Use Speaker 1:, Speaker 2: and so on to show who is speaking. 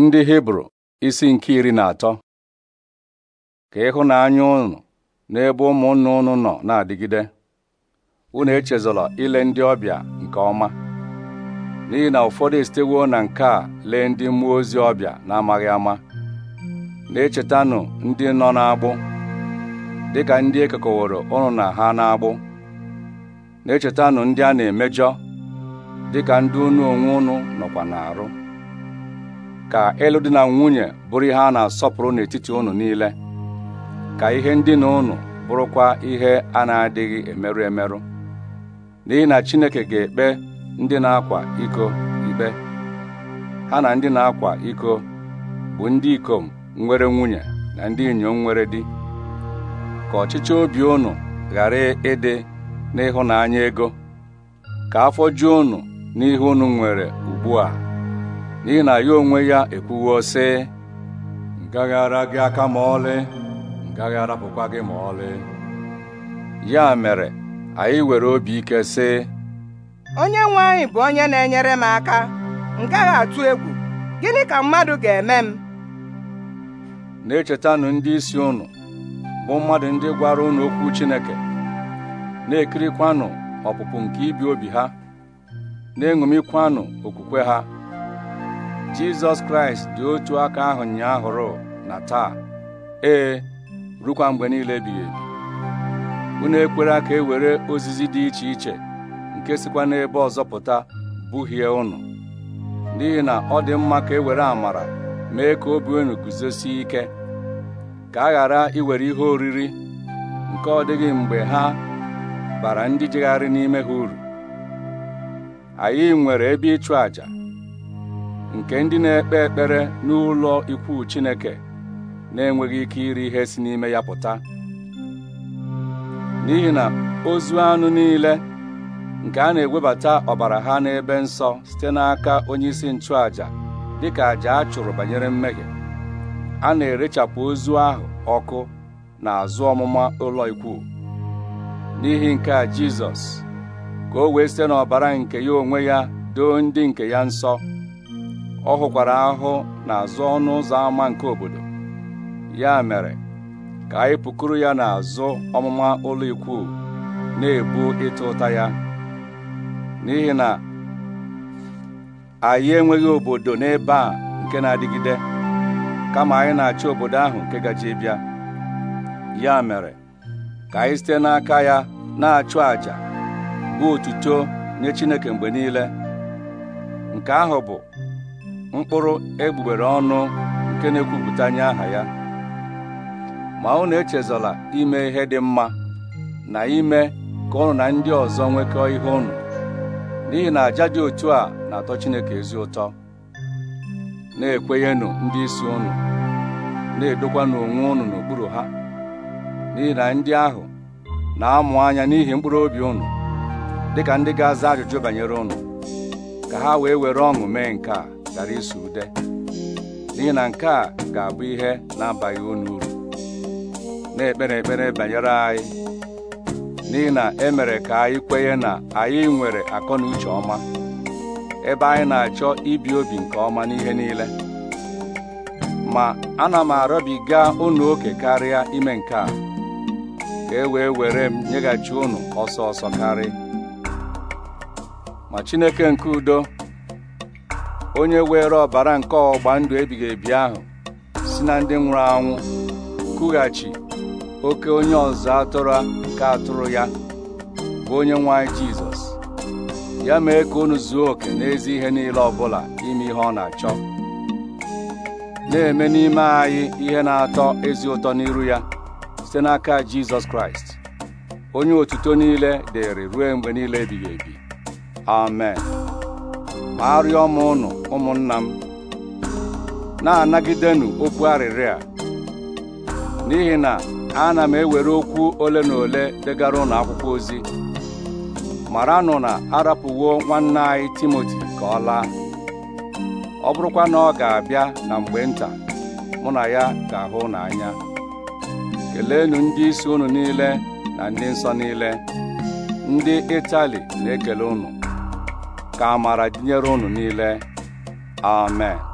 Speaker 1: ndị hibru isi nke iri na atọ ka ịhụnanya unu n'ebe ụmụnna unu nọ na-adịgide unu echezọla ile ndị ọbịa nke ọma n'ihi na ụfọdụ esitewo na nke a lee ndị mmụọ ozi ọbịa na-amaghị ama na-echetanụ ndị nọ n'agbụ dịka ndị ekekọworo ụnụ na ha n'agbụ na-echetanụ ndị a na-emejọ dịka ndị unu onwe unu nọkwa n'arụ ka ịlụ dị na nwunye bụrụ ihe a na-asọpụrụ n'etiti ụnụ niile ka ihe ndị na ụnụ bụrụkwa ihe a na-adịghị emerụ emerụ n'ihi na Chineke ga-ekpe ndị na-akwa iko ikpe ha na ndị na-akwa iko bụ ndị ikom nwere nwunye na ndị inyom nwere di ka ọchịchị obi ụnụ ghara ịdị n'ịhụnanya ego ka afọ ju ụnụ n'ihe unu nwere ugbu a n'ihi na ya onwe ya ekwuwo sị ngaghara gị aka ma ọlị ngaghara arapụkwa gị ma ọlị ya mere anyị were obi ike sị onye nwe anyị bụ onye na-enyere m aka m atụ egwu gịnị ka mmadụ ga-eme m na-echetanụ ndị isi ụnụ bụ mmadụ ndị gwara unu okwu Chineke na-ekirikwanụ ọpụpụ nke ibi obi ha na-eṅomikwanụ okwukwe ha jizọs kraịst dị otu aka ahụ ahụrụ na taa ee rukwa mgbe niile ebighị ebi unu ekwere ka e were ozizi dị iche iche nke sịkwa n'ebe ọzọ pụta buhie unu n'ihi na ọ dị mma ka e were amara mee ka obi unu guzosie ike ka a ghara iwere ihe oriri nke ọ dịghị mgbe ha bara ndị jegharị n'ime ha uru anyị nwere ebe ịchụ àjà nke ndị na-ekpe ekpere n'ụlọ ikwu Chineke na-enweghị ike iri ihe si n'ime ya pụta n'ihi na ozu anụ niile nke a na-ewebata ọbara ha n'ebe nsọ site n'aka onyeisi nchụaja dịka àjà a chụrụ banyere mmehie a na-erechapụ ozu ahụ ọkụ na azụ ọmụma ụlọ ikwu n'ihi nke a Jizọs ka o wee site n'ọbara nke ya onwe ya doo ndị nke ya nsọ ọ hụkwara ahụ n'azụ ọnụ ụzọ ámá nke obodo ya mere ka anyị pụkuru ya n'azụ ọmụma ụlọ ikwu na-ebu ịtụ ụta ya n'ihi na anyị enweghị obodo n'ebe a nke na-adịgide kama anyị na-achọ obodo ahụ nke gaji bịa ya mere ka anyị site n'aka ya na-achụ àjà bụ otuto nye Chineke mgbe niile nke ahụ bụ mkpụrụ egbugbere ọnụ nke na-ekwupụta nye aha ya ma unu echezọla ime ihe dị mma na ime ka ọnụ na ndị ọzọ nwekọọ ihe ụnụ n'ihi na àjà dị otu a na-atọ Chineke ezi ụtọ na-ekwenyenụ ndị isi unu na-edokwanụ onwe unu n'okpuru ha n'ihi na ndị ahụ na-amụ anya n'ihi mkpụrụ obi dị dịka ndị ga-aza ajụjụ banyere ụnụ ka ha wee were ọṅụ mee nke a gara ịsụ ude n'ihi na nke a ga-abụ ihe na-abaghị unu uru na-ekpere ekpere banyere anyị n'ihi na e mere ka anyị kwenye na anyị nwere akọ na uche ọma ebe anyị na-achọ ibi obi nke ọma n'ihe niile ma ana m arịọbiga unu oke karịa ime nke a ka e wee were m nyeghachi unu ọsọ ọsọ karị ma Chineke nke udo onye were ọbara nke ọgba ndụ ebighị ebi ahụ si na ndị nwụrụ anwụ kughachi oke onye ọzọ atụrụ nke atụrụ ya bụ onye nwanyị jizọs ya mee ka unu zuo oke n'ezi ihe niile ọbụla ime ihe ọ na-achọ na-eme n'ime anyị ihe na-atọ ezi ụtọ n'iru ya site n'aka jizọs kraịst onye otuto niile dịrị ruo mgbe niile ebighị ebi amen arịọ m ụnụ ụmụnna m na-anagidenụ okwu arịrịa n'ihi na ana m ewere okwu ole na ole degara ụnụ akwụkwọ ozi maranụ na arapụwo nwanne anyị Timoti ka ọ laa ọ bụrụkwa na ọ ga-abịa na mgbe nta mụ na ya ga-ahụ n'anya keleenụ ndị isi unu niile na ndị nsọ niile ndị Itali na-ekele unu ka amara dịnyere unu niile amen